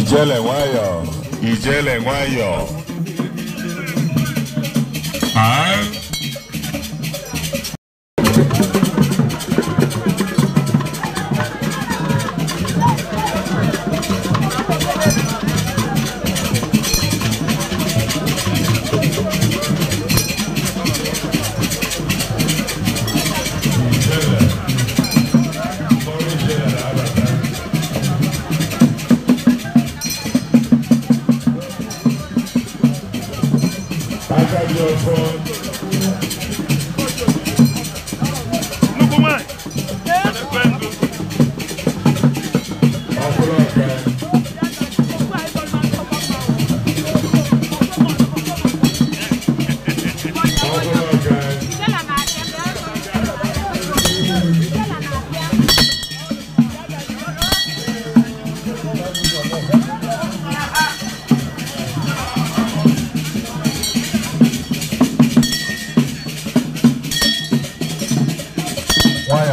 Ijele Nwayo, Ijele Nwayo. And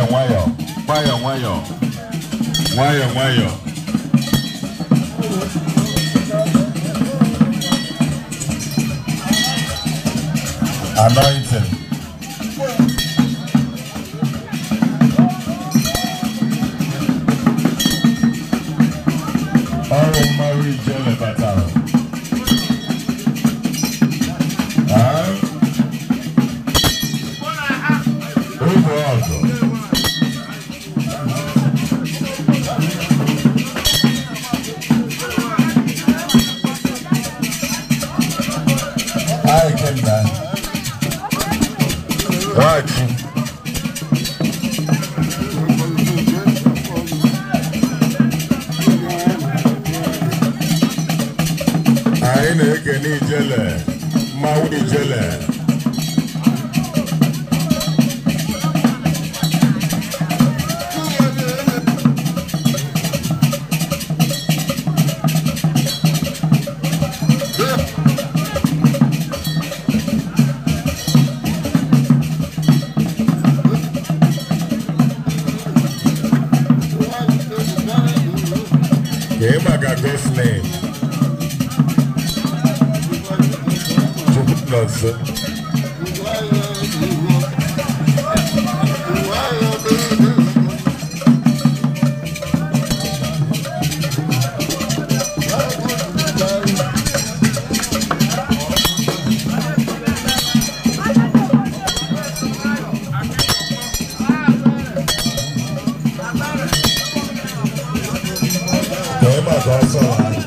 nwayọ nwayọ nwayọ nwayọ nwayọ anointing Right. I ain't na-ekene jelly, Maui jelly. at this name. Jupiter's. Uh, up, that's all right.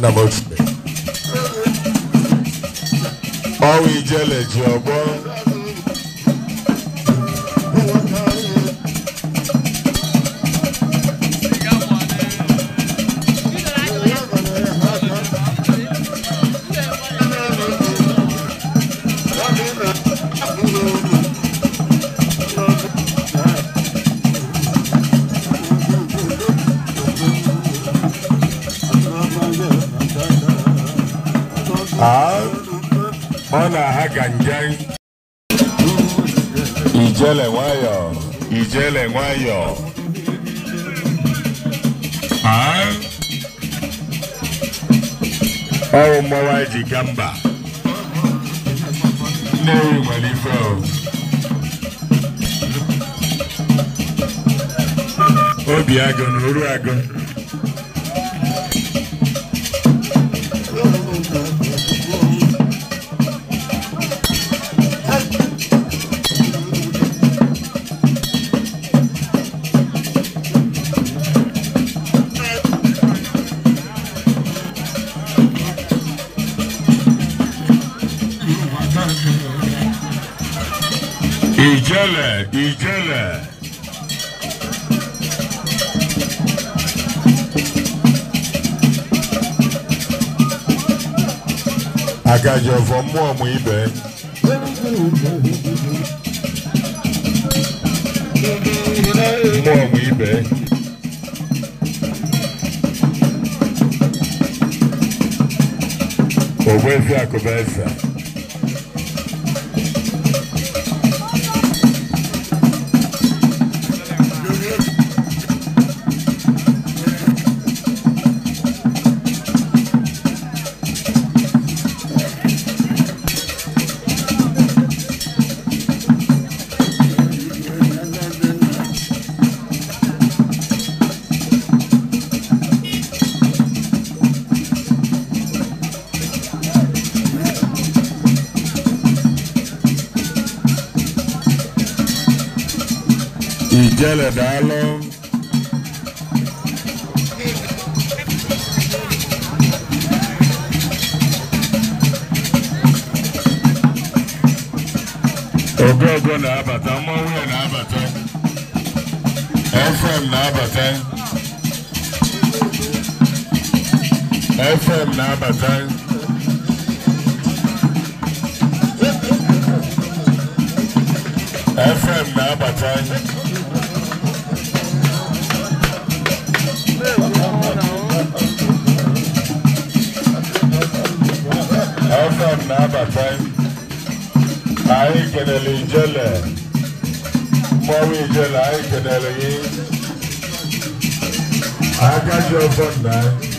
Number ọwụ ijele ji ọgbọ mana ha ijele nwayọ ijele nwayọ ọrụ mmọnwụ anyị ji ga mba nnewi nwere ife obi agụ na oru agụ Ìjẹ̀lẹ̀ Ìjẹ̀lẹ̀. Agajọ̀fọ̀ mú ọmọ ibẹ̀. Mú ọmọ ibẹ̀. Ògbẹ́fẹ́ àkọ́bẹ́ ẹ̀sà. Ijele Dalo. Ogogo na-abata, mmanwụ na-abata, FM na-abata, FM na-abata. FM na-abata ọsọ m na-abata na anyị kenele ijele mmọnwụ ijele anyị kenele gị